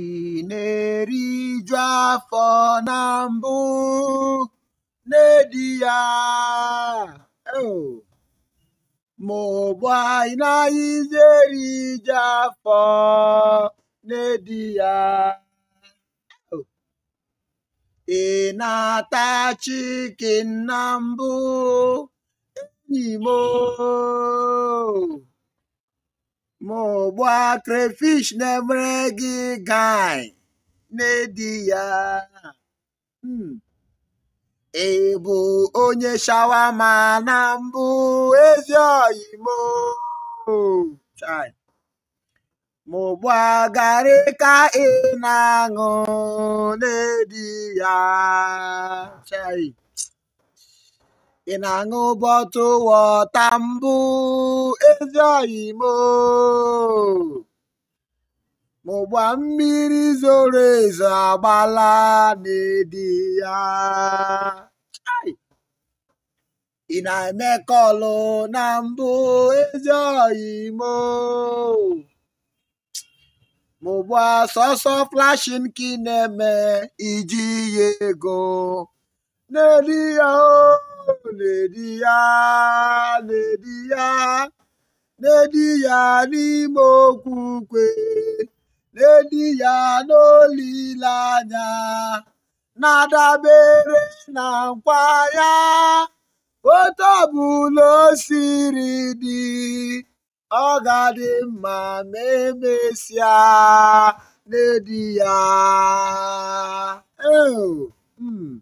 ị na-eriju afọ na mbụ n'edi ya ma ụgbọ anyị naghịzi eriju afọ n'edi ya ị chikin na mbụ enyi m ma crayfish na-emere gị gine n'ịdị ya ị hmm. bụ onye shawama na mbụ ezi oyimo ma ụgbọ garị ka ị na-aṅụ n'ịdị ya chai ị na-aṅụ bọtụ wọta mbụ ezi oyi mụgba mmiri zoro ezo agbala n'edi ya ị na-eme kọlụ na mbụ ezi oyi mụgba sọsọ flashin ka ị na-eme iji ya ego n'edi ya o oh! na-edi ya na-edi ya na ya n'ime okwukwe ukwe na-edi ya n'olileanya na-adabere na nkwa ya otu ọbụla o siri dị ọ ga-adị mma ma emesịa na-edi ya hmm.